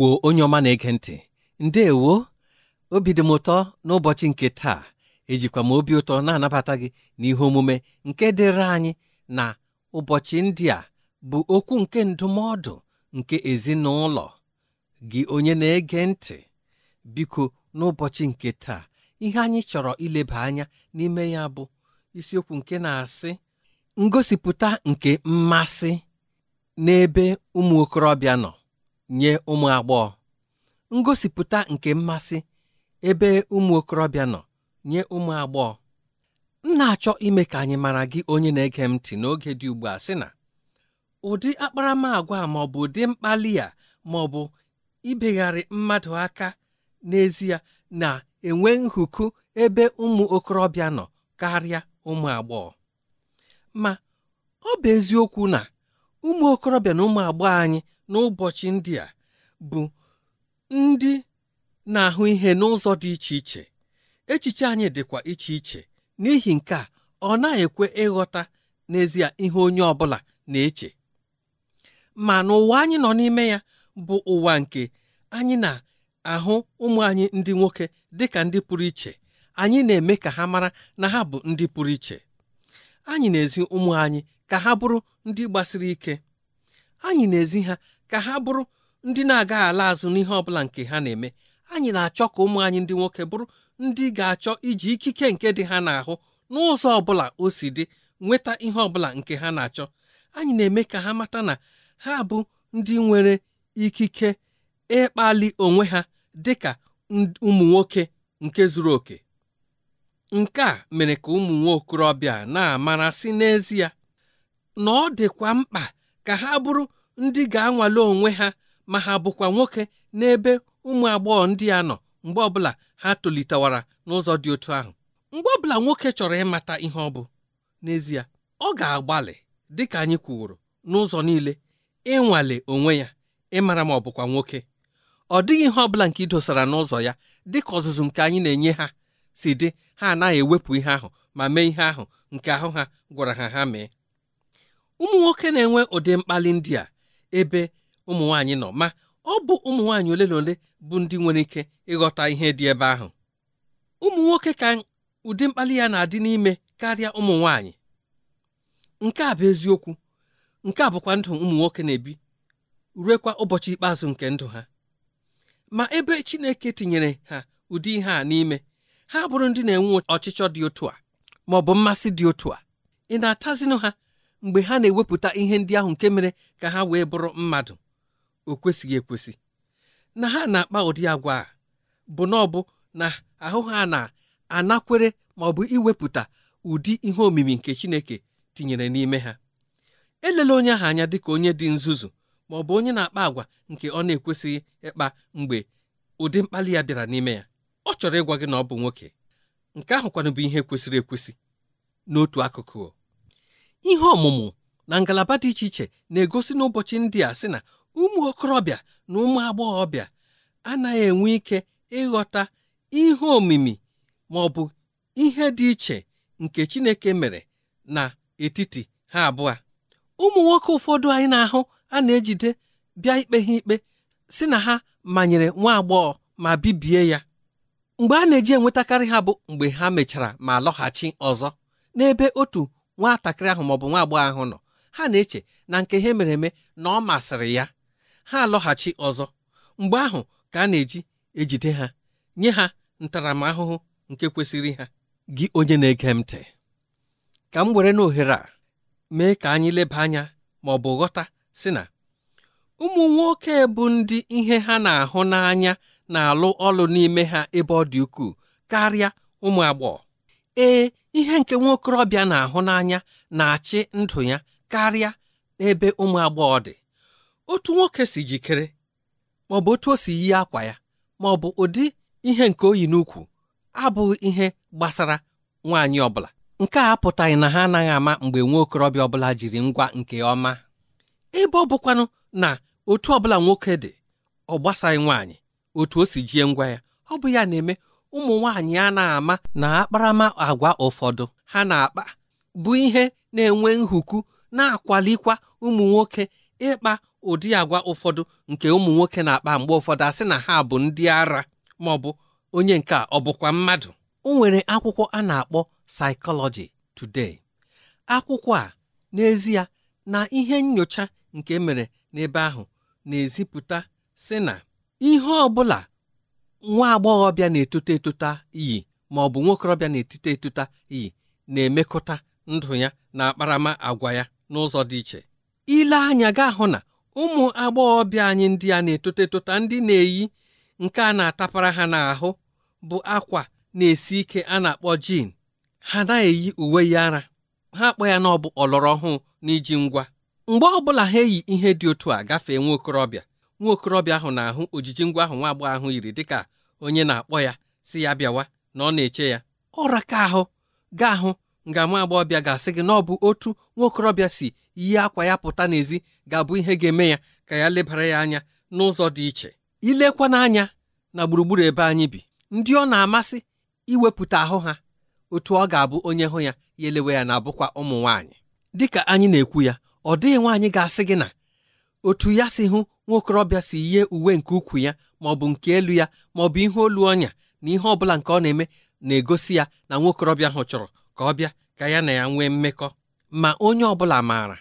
igbo onye ọma na-ege ntị ndeewo obi dị m ụtọ n'ụbọchị nke taa ejikwa m obi ụtọ na-anabata gị n'ihe omume nke dịrị anyị na ụbọchị ndị a bụ okwu nke ndụmọdụ nke ezinụlọ gị onye na-ege ntị biko n'ụbọchị nke taa ihe anyị chọrọ ileba anya n'ime ya bụ isiokwu nke na-asị ngosipụta nke mmasị n'ebe ụmụ okorobịa nọ nye ụmụ agbọghọ ngosipụta nke mmasị ebe ụmụ okorobịa nọ nye ụmụ agbọghọ m na-achọ ime ka anyị mara gị onye na-ege m ntị n'oge dị ugbu a sị na ụdị akparamagwa ma ọ bụ ụdị mkpali a ma ọ bụ ibegharị mmadụ aka n'ezie na-enwe nhuku ebe ụmụ okorobịa nọ karịa ụmụ agbọghọ ma ọ bụ eziokwu na ụmụ okorobịa na ụmụ agbọghọ anyị n'ụbọchị ndị a bụ ndị na-ahụ ihe n'ụzọ dị iche iche echiche anyị dịkwa iche iche n'ihi nke a ọ na ekwe ịghọta n'ezie ihe onye ọ bụla na-eche ma n'ụwa anyị nọ n'ime ya bụ ụwa nke anyị na-ahụ ụmụ anyị ndị nwoke dị ka ndị pụrụ iche anyị na-eme ka ha mara na ha bụ ndị pụrụ iche anyị na-ezi ụmụ anyị ka ha bụrụ ndị gbasiri ike anyị na-ezi ha ka ha bụrụ ndị na-agaghị ala azụ n'ihe ọ bụla nke ha na-eme anyị na-achọ ka ụmụ anyị ndị nwoke bụrụ ndị ga-achọ iji ikike nke dị ha n'ahụ n'ụzọ ọ bụla o si dị nweta ihe ọ bụla nke ha na-achọ anyị na-eme ka ha mata na ha bụ ndị nwere ikike ịkpali onwe ha dị ka ụmụ nwoke nke zuru oke nke a mere ka ụmụ nwa okorobịa na n'ezie na ọ dịkwa mkpa ka ha bụrụ ndị ga-anwale onwe ha ma ha bụkwa nwoke n'ebe ụmụ agbọghọ ndị a nọ mgbe ọbụla ha tolitewara n'ụzọ dị otu ahụ mgbe ọbụla nwoke chọrọ ịmata ihe ọ bụ n'ezie ọ ga-agbalị dị ka anyị kwuworo n'ụzọ niile ịnwale onwe ya ịmara ma ọ bụkwa nwoke ọ dịghị ihe ọbụla nke idosara n'ụzọ ya dị ka ọzụzụ nke anyị na-enye ha si dị ha anaghị ewepụ ihe ahụ ma mee ihe ahụ nke ahụ ha gwara ha ha mee ụmụ nwoke na-enwe ụdị mkpali ndị a ebe ụmụ nwaanyị nọ ma ọ bụ ụmụ nwaanyị ole na ole bụ ndị nwere ike ịghọta ihe dị ebe ahụ ụmụ nwoke ka ụdị mkpali ya na-adị n'ime karịa ụmụ nwaanyị nke a bụ eziokwu nke a bụkwa ndụ ụmụ nwoke na-ebi ruekwa ụbọchị ikpeazụ nke ndụ ha ma ebe Chineke tinyere ha ụdị ihe a n'ime ha bụrụ ndị na-enwe ọchịchọ dị otu a ma ọ bụ mmasị dị otu a ị na-atazinụ ha mgbe ha na-ewepụta ihe ndị ahụ nke mere ka ha wee bụrụ mmadụ o kwesịghị ekwesị na ha na-akpa ụdị agwa a bụ na ọ bụ na ahụ ha na-anakwere ma ọ bụ iwepụta ụdị ihe omimi nke Chineke tinyere n'ime ha elela onye ahụ anya dịka onye dị nzuzu ma ọ bụ onye na-akpa agwa nke ọ na-ekwesịghị ịkpa mgbe ụdị mkpali ya bịara n'ime ya ọ chọrọ ịgwa gị na ọ bụ nwoke nke ahụkwanụ bụ ihe kwesịrị ekwesị n'otu akụkụ ihe ọmụmụ na ngalaba dị iche iche na-egosi n'ụbọchị ndị a sị na ụmụ okorobịa na ụmụ agbọghọbịa anaghị enwe ike ịghọta ihe omimi ma ọ bụ ihe dị iche nke Chineke mere na etiti ha abụọ ụmụ nwoke ụfọdụ anyị na-ahụ a na-ejide bịa ikpe ha ikpe si na ha manyere nwa agbọghọ ma bibie ya mgbe a na-eji enwetakarị ha bụ mgbe ha mechara ma lọghachi ọzọ n'ebe otu nwatakịrị ahụ maọbụ nwa agbọghọ ahụ nọ ha na-eche na nke ha mere eme na ọ masịrị ya ha alọghachi ọzọ mgbe ahụ ka a na-eji ejide ha nye ha ntaramahụhụ nke kwesịrị ha gị onye na-ege ntị ka m were n'ohere a mee ka anyị leba anya ma ọ bụ ghọta si na ụmụ nwoke bụ ndị ihe ha na-ahụ n'anya na-alụ ọlụ n'ime ha ebe ọ dị ukwuu karịa ụmụ agbọghọ ee ihe nke nwa okorobịa na-ahụ n'anya na-achị ndụ ya karịa n'ebe ụmụ agbọghọ dị otu nwoke si jikere maọbụ otu o si yi akwa ya maọbụ ụdị ihe nke oyi n'ukwu abụghị ihe gbasara nwaanyị ọbụla nke a apụtaghị na ha anaghị ama mgbe nwa okorobịa ọbụla jiri ngwa nke ọma ebe ọ bụkwanụ na otu ọbụla nwoke dị ọ gbasaghị nwaanyị otu o si jie ngwa ya ọ bụ ya na-eme ụmụ nwanyị a na-ama na akparama agwa ụfọdụ ha na-akpa bụ ihe na-enwe nhuku na-akwalikwa ụmụ nwoke ịkpa ụdị agwa ụfọdụ nke ụmụ nwoke na-akpa mgbe ụfọdụ asị na ha bụ ndị ara ma ọ bụ onye nke ọ bụkwa mmadụ o nwere akwụkwọ a na-akpọ Psychology Today akwụkwọ a n'ezie na ihe nyocha nke e mere n'ebe ahụ na-ezipụta sị na ihe ọ bụla nwa agbọghọbịa na-etota etota iyi ma ọ bụ nwokorobịa na-etota etota iyi na-emekọta ndụ ya na akparama agwa ya n'ụzọ dị iche ile anya gaa hụ na ụmụ agbọghọbịa anyị ndị a na-etota etota ndị na-eyi nke a na-atapara ha n'ahụ bụ akwa na-esi ike a na-akpọ jin ha na-eyi uwe ya ara ha akpọ ya na ọ bụ ọlọrọ ọhụụ n'iji ngwa mgbe ọ bụla ha eyi ihe dị otu a gafee nwa okorobịa nwa okorobịa ahụ na-ahụ ojiji ngwa ahụ nwa agbọghọ ahụ yiri dịka onye na-akpọ ya si ya bịawa na ọ na-eche ya ọra ka ahụ gaa ahụ nga nwa agbọghọbịa ga-asị gị na ọ bụ otu nwa okorobịa si yi akwa ya pụta n'ezi ga-abụ ihe ga-eme ya ka ya lebara ya anya n'ụzọ dị iche ilekwa n'anya na gburugburu ebe anyị bi ndị ọ na-amasị iwepụta ahụ ha otu ọ ga-abụ onye hụ ya ya elewe ya na-abụkwa ụmụ nwaanyị dịka anyị na-ekwu ya ọ dịghị nwaanyị ga-asị gị na otu ya si hụ nwaokorobịa si yie uwe nke ukwu ya ma ọ bụ nke elu ya ma ọ bụ ihe olu ọnya na ihe ọbụla nke ọ na-eme na-egosi ya na nwaokorobịa ahụ chọrọ ka ọ bịa ka ya na ya nwee mmekọ ma onye ọbụla maara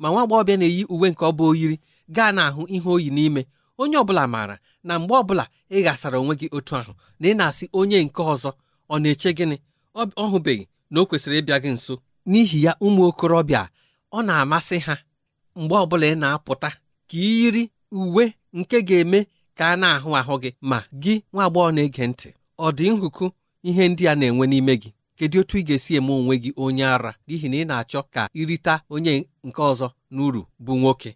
ma nwa agbọghọbịa na-eyi uwe nke ọ bụ oyiri gaa n'ahụ ihe oyi n'ime onye ọbụla maara na mgbe ọbụla ị ghasara onwe gị otu ahụ na ị na-asị onye nke ọzọ ọ na-eche gịnị ọ hụbeghị na o kwesịrị ịbịa gị nso n'ihi ya ụmụ okorobịa ọ na-amasị ha mgbe ọbụla ị na-apụta ka iyiri uwe nke ga-eme ka a na-ahụ ahụ gị ma gị nwa agbọghọ na-ege ntị ọ dị nhụkụ ihe ndị a na-enwe n'ime gị kedu otu ị ga-esi eme onwe gị onye ara n'ihi na ị na-achọ ka ịrịta onye nke ọzọ n'uru bụ nwoke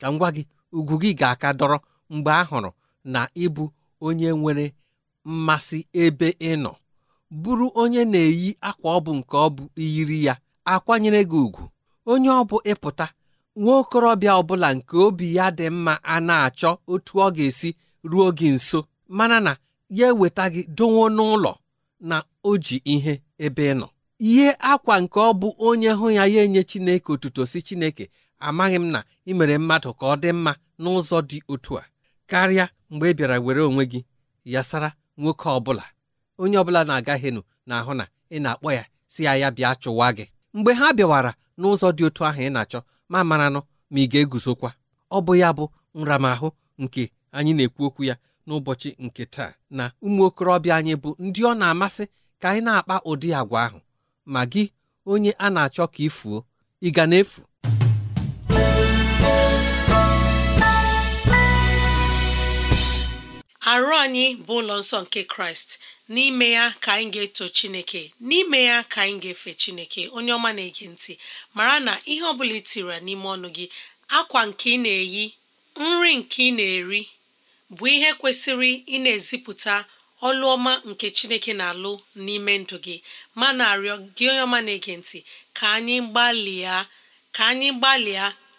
ka m gwa gị ugwu gị ga-aka dọrọ mgbe a hụrụ na ịbụ onye nwere mmasị ebe ị nọ bụrụ onye na-eyi akwa ọ bụ nke ọ bụ iyiri ya akwanyere gị ugwu onye ọ bụ ịpụta nwa okorobịa ọbụla nke obi ya dị mma a na-achọ otu ọ ga-esi ruo gị nso mana na ya eweta gị dowo n'ụlọ na o ji ihe ebe ị nọ ihe akwa nke ọ bụ onye hụ ya ya enye Chineke otuto si Chineke amaghị m na ị mere mmadụ ka ọ dị mma n'ụzọ dị otu a karịa mgbe ị bịara were onwe gị yasara nwoke ọbụla onye ọbụla na-agaghịnụ na-ahụ na ị na-akpọ ya si ya ya bịa chụwa gị mgbe ha bịawara n'ụzọ dị otu ahụ ị na-achọ ma maranụ ma ị ga-eguzokwa ọ bụ ya bụ nramahụ nke anyị na-ekwu okwu ya n'ụbọchị nke taa na ụmụ okorobịa anyị bụ ndị ọ na-amasị ka anyị na-akpa ụdị agwa ahụ ma gị onye a na-achọ ka ị fuo ị ga na-efu arụ anyị bụ ụlọ nsọ nke kraịst n'ime ya ka anyị ga-eto chineke n'ime ya ka anyị ga-efe chineke onye ọma na-ege ntị mara na ihe ọ bụla itira n'ime ọnụ gị akwa nke ị na-eyi nri nke ị na-eri bụ ihe kwesịrị ị na-ezipụta ọlụ ọma nke chineke na-alụ n'ime ndụ gị ma na-arịọ gị onye ọma na-ege ntị ka anyị gbalịa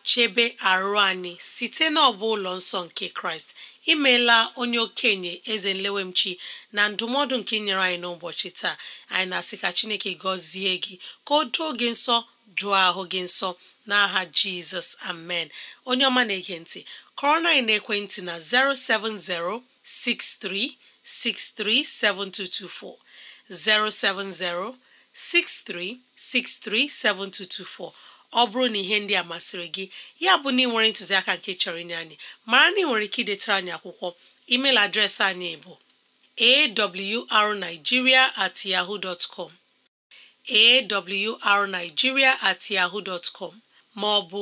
chebe arụ anyị site n'ọbụ ụlọ nsọ nke kraịst imeela onye okenye eze nlewemchi na ndụmọdụ nke nyere anyị n'ụbọchị taa anyị na-asị ka chineke gọzie gị ka o doo gị nsọ dụọ ahụ gị nsọ n'aha jizọs amen onye ọma na-ege ntị kọrọ na ekwentị na 07063637224 07063637224 ọ bụrụ na ihe ndị a masịrị gị ya bụ na ị nwere ntụziaka nke chọrọ inye anyị mara na ị nwere ike idetara anyị akwụkwọ email adreesị anyị bụ awrnigeria at com at ma ọ bụ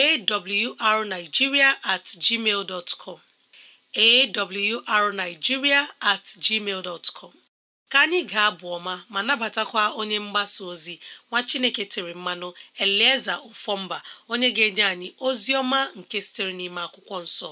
at com at gmail ka anyị ga-abụ ọma ma nabatakwa onye mgbasa ozi nwa chineke tiri mmanụ elieza ofomba onye ga-enye anyị ozi ọma nke sitere n'ime akwụkwọ nsọ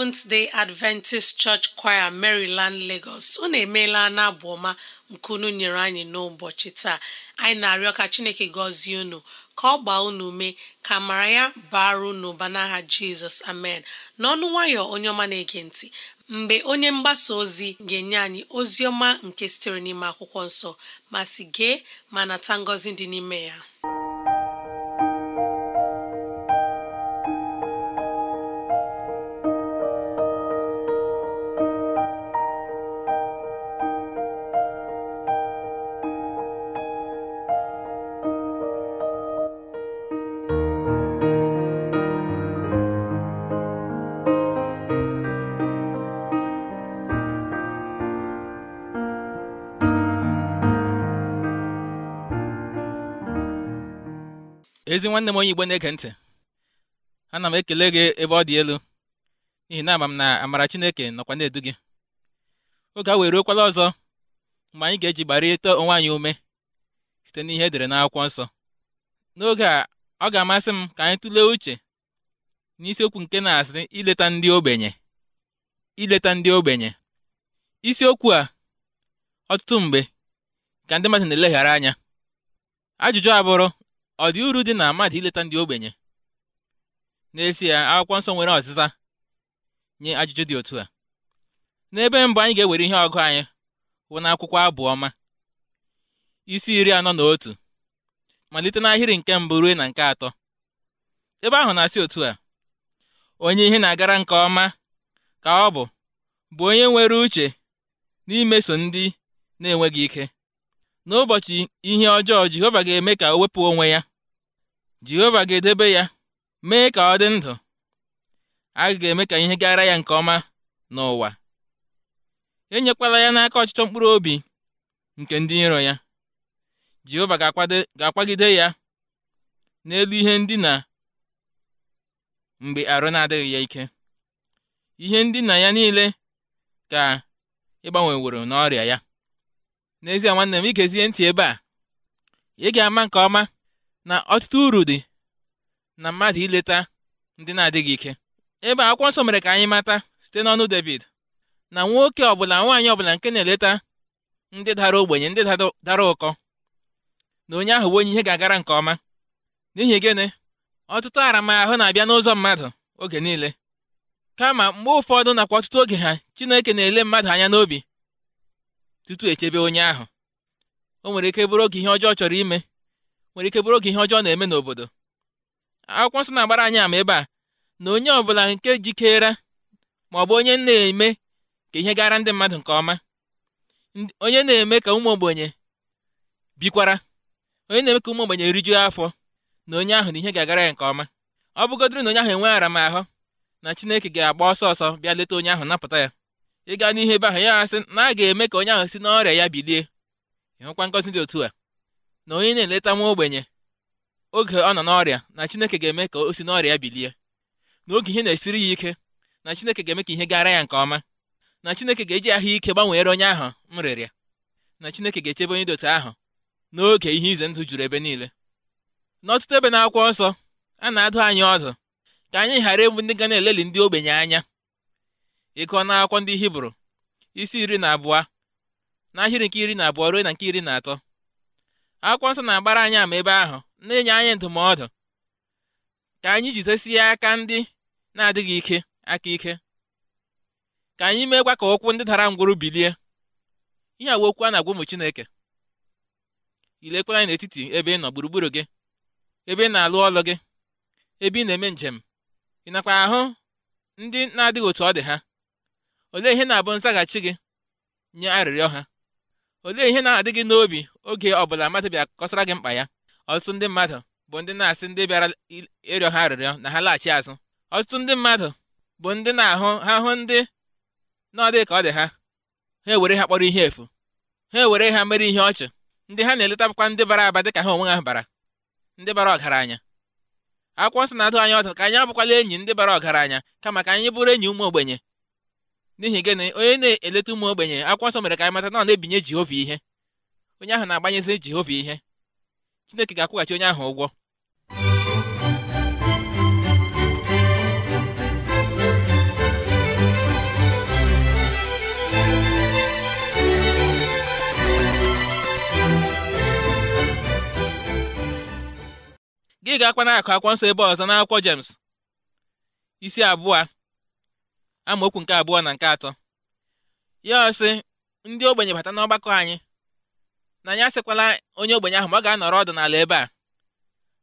Seventh Day Adventist Church Choir Maryland Lagos unu emeela n'abụ ọma nke unu nyere anyị n'ụbọchị taa anyị na-arịọ ka Chineke gọzie unu ka ọ gbaa unu ume ka mara ya bara unu ụba n'aha Jizọs amen n'ọnụ nwayọ onye ọma na-ege ntị mgbe onye mgbasa ozi ga-enye anyị ozi ọma nke sitere n'ime akwụkwọ nsọ ma si gee ma nata ngọzi dị n'ime ya ezi nwanne m onye igbo na eke ntị ana m ekele gị ebe ọ dị elu n'ihi na ama m na amara chineke nọkwa na-edu gị oge a wee ruokwala ọzọ mgbe anyị ga-eji gbarịta onwe anyị ume site n'ihe edere n'akwụkwọ nsọ n'oge a ọ ga-amasị m ka anyị tụlee uche n'isiokwu nke na-asị ileta ndị ogbenye ileta ndị ogbenye isiokwu a ọtụtụ mgbe ka ndị mmadụ na-eleghara anya ajụjụ abụrụ ọ dị uru dị na mmadụ ileta ndị ogbenye n'ezie akwụkwọ nsọ nwere ọzịza nye ajụjụ dị otu a n'ebe mbụ anyị ga-ewere ihe ọgụ anyị hụ n'akwụkwọ abụ ọma isi iri anọ na otu malite n'ahịrị nke mbụ ruo na nke atọ ebe ahụ na-asị otu a onye ihe na-agara nke ọma ka ọ bụ bụ onye nwere uche n'imeso ndị na-enweghị ike n'ụbọchị ihe ọjọọ Jehova ga-eme ka o wepụ onwe ya Jehova ga-edebe ya mee ka ọ dị ndụ a ga-eme ka ihe gara ya nke ọma n'ụwa enyekwala ya n'aka ọchịchọ mkpụrụ obi nke ndị iro ya Jehova ga-akwagide ya n'elu ihe ndina mgbe arụ na-adịghị ya ike ihe ndina ya niile ka woro n'ọrịa ya n'ezie nwanne m ị ntị ebe a ị ga-ama nke ọma na ọtụtụ uru dị na mmadụ ileta ndị na-adịghị ike ebe akwụkwọ nsọ mere ka anyị mata site n'ọnụ David na nwoke ọbụla nwaanyị ọbụla nke na-eleta ndị dara ogbenye ndị dara ụkọ na onye ahụ bụ onye ihe ga-agara nke ọma n'ihi gịnị ọtụtụ aramahụ na-abịa n'ụzọ mmadụ oge niile kama mgbe ụfọdụ nakwa ọtụtụ oge ha Chineke na-ele mmadụ anya n'obi tutu echebe onye ahụ o nwere ike bụrụ oge ihe ọjọọ chọrọ ime nwere ike bụrụ oge ihe ọjọọ na-eme n'obodo akwụkwọ nsọ na-agbara anyị ama ebe a na onye ọbụla nke jikere ma ọ bụ onye na-eme ka ihe gara ndị mmadụ nke ọma onye na-eme ka ụmụ ogbenye bikwara onye na-eme ka ụmụ ogbenye rijuo afọ na onye ahụ na ihe ga-agara ya nke ọma ọ bụgodịrị na onye ahụ enweghị aramahụ na chineke ga-agba ọsọ ọsọ bịa leta onye ahụ napụta ya ịga n'ihe ebe ahụ ya asị na a ga-eme ka onye ahụ si n'ọrịa ya bilie ịhụkwa ngọzi dị otu a na onye na-eleta nwa ogbenye oge ọ nọ n'ọrịa na Chineke ga-eme ka o si n'ọrịa bilie na oge ihe na-esiri ya ike na Chineke ga-eme ka ihe gara ya nke ọma na Chineke ga-eji ahụike gbanweere onye ahụ m rịrịa na Chineke ga-echebe onye dote otu ahụ n'oge ihe ize ndụ juru ebe niile n'ọtụtụ ebe na-akwụ nsọ a na-adụ anyị ọdụ ka anyị ghara egbu ndị ga na-eleli ndị ogbenye anya ịkọ n'akwụkwọ ndị Hibru isi iri na abụọ n'ahịrị nke iri na abụọ ruo na nke iri na atọ akwụkwọ nsọ na-agbara anyị ama ebe ahụ na-enye anyị ndụmọdụ ka anyị jidesie aka ndị na-adịghị ike aka ike ka anyị meekwa ka okwu ndị dara ngwụrụ bilie ihe awa okwu a na-agwa ụmụ Chineke anyị n'etiti ebe ị nọ gburugburu gị ebe ị na-alụ ọlụ gị ebe ị na-eme njem ị nakwa ahụ ndị na-adịghị otu ọ dị ha olee ihe na-abụ nzaghachi gị nye arịrịọ ha olee ihe na-adị gị n'obi oge ọbụla mmadụ bịa kọsara gị mkpa ya ọtụtụ ndị mmadụ bụ ndị na-asị ndị bịara ịrịọ ha arịrịọ na ha laghachi azụ ọtụtụ ndị mmadụ bụ ndị na-ahụ ha hụ ndị n'ọdị ka ọ dị ha ha ewere ha kpọrọ ihe efu ha ewere ha mere ihe ọchị ndị ha na-eletakwa ndị bara aba dị ka ha onwe ha bara ndị bara ọgaranya akwụkwọ nsọ na-adụ anya ọdụ ka anyị abụkwala enyi ndị bara ọgaranya kama ka anyị bụrụ enyi ụmụ ogbenye n'ihi gịnị onye na-eleta ụmụ ogbenye akwụkwọ nsọ mere ka anyị mata na ọ na-ebinye Jehova ihe onye ahụ na-agbanyezi Jehova ihe Chineke ga-akwụghachi onye ahụ ụgwọ gị ga-akwa na-akụ akwụkwọ nsọ ebe ọzọ n'akwụkwọ jems isi abụọ amaokwu nke abụọ na nke atọ ya ọsị ndị ogbenye bata n'ọgbakọ anyị na anyị asịkwala onye ogbenye ahụ ma ọ ga-anọrọ ọdụ n'ala ebe a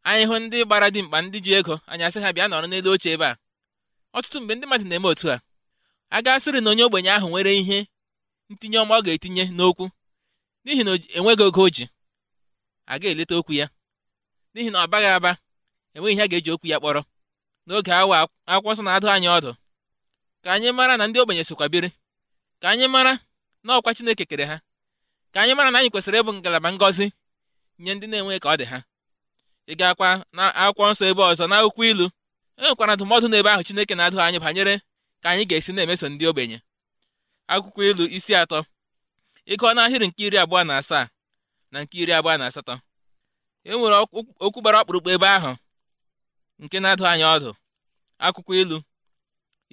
anyị hụ ndị gbara dimkpa ndị ji ego anyị asị ha bịa nọrọ n'elu oche ebe a ọtụtụ mgbe ndị mmadụ na-eme otu a a gasịrị na onye ogbenye ahụ nwere ihe ntinye ọma ọ ga-etinye n'okwu n'ihi na enweghị oge o ji ga eleta okwu ya n'ihi na ọ baghị aba enweghị ihe a ga-eji okwu ya kpọrọ n'oge awa akwụkwọ nsọ na-adụ anyị ọdụ ka anyị mara na ndị ogbenye sokwa biri ka anyị mara na ọkwa Chineke kere ha ka anyị mara na anyị kwesịrị ịbụ ngalaba ngọzi nye ndị na-enwe ka ọ dị ha ị gaakwa na akwụkwọ nsọ ebe ọzọ na akwụkwọ ilu e nwekwara ndụmọdụ n'ebe ahụ Chineke na-adụ anyị banyere ka anyị ga-esi na-emeso ndị ogbenye akwụkwọ ilu isi atọ ịgụọ ahịrị nke iri abụọ na asaa na nke iri abụọ na asatọ e nwere okwu gbara ọkpụrụkpụ ebe ahụ nke na-adụ anyị ọdụ akwụkwọ ilu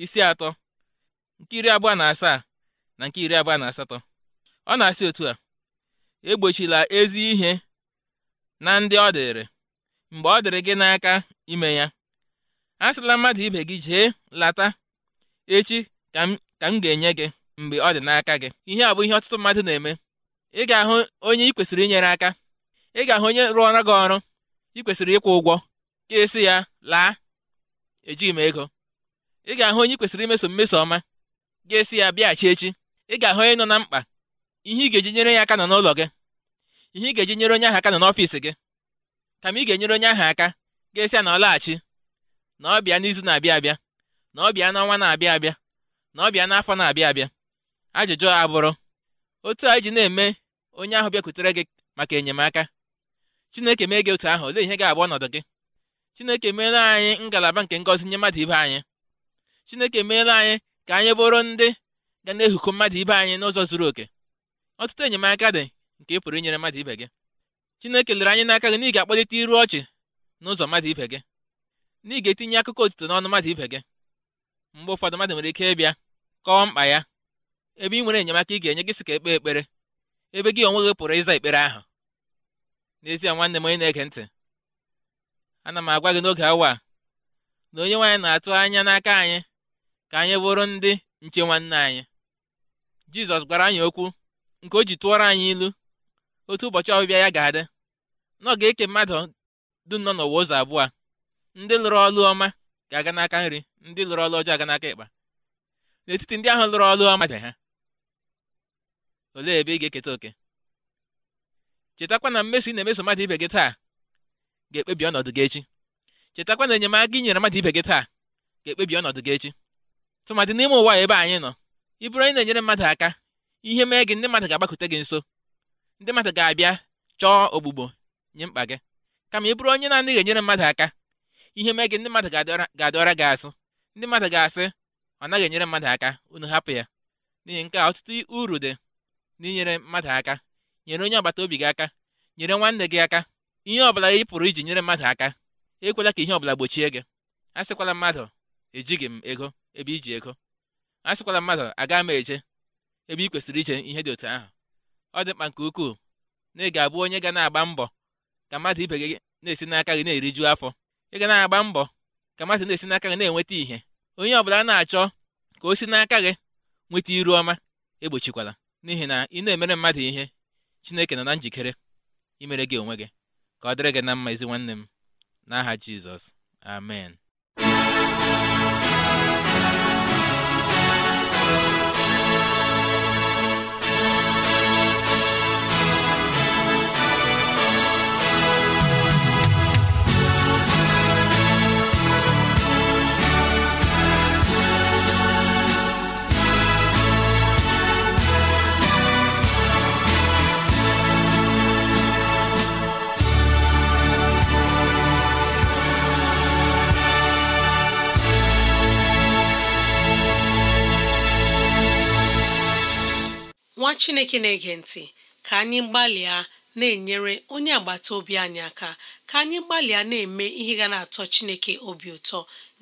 isi atọ nke iri abụọ na asaa na nke iri abụọ na asatọ ọ na-asị otu a egbochila ezi ihe na ndị ọ dịrị mgbe ọ dịrị gị n'aka ime ya sịla mmadụ ibe gị jee lata echi ka m ga-enye gị mgbe ọ dị n'aka gị ihe a bụ ihe ọtụtụ mmadụ na-eme ị ga-ahụ onye ị kwesịrị inyere aka ị ga-ahụ onye rụọra gị ọrụ ị kwesịrị ịkwụ ụgwọ ka esi ya laa ejighị m ego ị ga-ahụ onye ị kwesịrị imeso mmeso ọma ga-esi ya bịaghachi echi ị ga-ahụ onye nọ na mkpa ihe ị ga-eji nyere ya aka nọ n'ụlọ gị ihe ị ga-eji nyere onye ahụ aka nọ n'ọfịs gị kama ị ga-enyere onye ahụ aka ga-esi na ọlaghachi na ọ bịa n'izu na-abịa abịa na ọ bịa n'ọnwa na-abịa abịa na ọ bịa n'afọ na-abịa abịa ajụjụ a bụrụ otu a ji na-eme onye ahụ bịakwutere gị maka enyemaka Chineke mee gị otu ahụ olee ihe ga-abụ ọnọdụ gị Chineke meela anyị ngalaba nke ngọzi nye mmadụ ibe anyị Chineke meela anyị ka anyị bụrụ ndị ga na-ehuko mmadụ ibe anyị n'ụzọ zuru oke ọtụtụ enyemaka dị nke ị pụrụ inyere mmadụ ibe gị Chineke lere anyị n'aka gị na ị ga-akpọlite iru ọchị n'ụzọ mmadụ ibe gị na ị ga-etinye akụkọ otuto n'ọnụ mmadụ ibe gị mgbe ụfọdụ mmadụ nwere ike ịbịa kọọ mkpa ya ebe ị nwere enyemaka ị ga-enye gị sị ka ekpe ekpere ebe gị onwe gị pụrụ ịza ekpere ahụ n'ezie nwanne m onye na-ege ntị ana m agwa gị n'oge awa a na onye nwaanyị na-atụ anya n'aka anyị ka anyị bụrụ ndị nche nwanne anyị Jizọs gwara anyị okwu nke o ji tụọrọ anyị ilu otu ụbọchị ọbịbịa ya ga-adị na ọ ga-eke mmadụ dum nọ n'ụwa ụzọ abụọ ndị lụrụ ọlụ ọma ga-aga n'aka nri ndị lụrụ ọlụ ọjọọ aga n'aka ịkpa n'etiti ndị ahụ lụrụ ọlụ ọma dị ha olee ebe ị ga-eketa oke chetakwa na mmeso ị na-emeso mmadụ ibe gị taa ga-ekpebi ọnọdụ gị echi chetakwa na enyemaka ị nyere mmadụ ibe gị taa ga-ekpebi ọnọdụ gị echi tụmadị n'ime ụwa ebe anyị nọ ịbụrụ na-enyere mmadụ aka ihe mee gị ndị mmadụ ga-agbakute gị nso ndị mmadụ ga-abịa chọọ ogbugbo nye mkpa gị kama ị bụrụ onye na-anaghị enyere mmadụ aka ihe mee gị ndị mmadụ ga-adịọra gị asụ ndị mmadụ ga-asị ọ naghị enyere mmadụ aka unu hapụ ya n'ihi nke a ọtụtụ uru dị n'inyere mmadụ aka nyere onye agbata obi gị aka nyere nwanne gị aka ihe ọbụla ị pụrụ iji nyere mmadụ aka ekwela ka ihe ọbụla gbochie gị asịkwala mmadụ ejighị m ego ebe iji ego asịkwala mmadụ agaghị m eje ebe ị kwesịrị iche ihe dị otu ahụ ọ dị mkpa nke ukwuu na ị ga-abụ onye ga na-agba mbọ ka mmadụ ibe gị na-esi n'aka gị na-eriju afọ ị ga na-agba mbọ ka mmadụ na-esi n'aka gị na-enweta ihe onye ọbụla na-achọ ka o si n'aka gị nweta iru ọma egbochikwala n'ihi na ị na-emere mmadụ ihe Chineke nọ na njikere imere gị onwe gị ka ọ dịrị gị na mma ezi nwanne m n'aha Jizọs amen chineke na-ege ntị ka anyị gbalịa na-enyere onye agbata obi anyị aka ka anyị gbalịa na-eme ihe ga na-atọ chineke obi ụtọ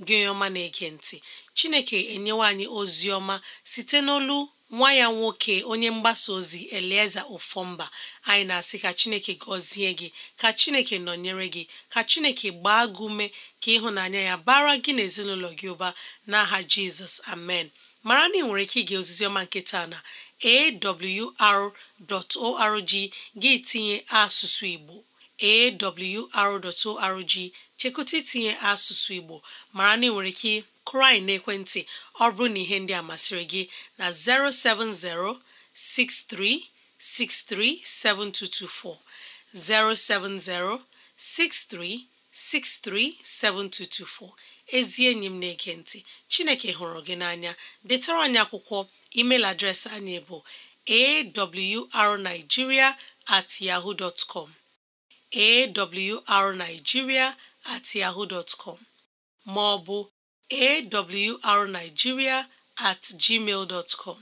gị ọma na-ege ntị chineke enyewa anyị ozi ọma site n'olu nwa ya nwoke onye mgbasa ozi elieza ofomba anyị na-asị ka chineke gọzie gị ka chineke nọnyere gị ka chineke gbaa gị ume ka ịhụnanya ya bara gị na gị ụba n'aha jizọs amen mara na ị nwere ike ige ozizi ọma nke na awr.org gị tinye asụsụ Igbo awr.org chekụta itinye asụsụ Igbo mara na ị nwere ike kụrụ anyị n'ekwentị ọ bụrụ na ihe ndị a masịrị gị na 07063637224 7224. ezi enyi m na-ege ntị chineke hụrụ gị n'anya detara anyị akwụkwọ email adreesị anyị bụ arigiria at com ma ọ bụ at com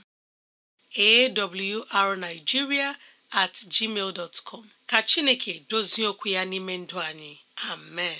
at gmail dotcom ka chineke dozie okwu ya n'ime ndụ anyị amen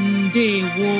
ndewo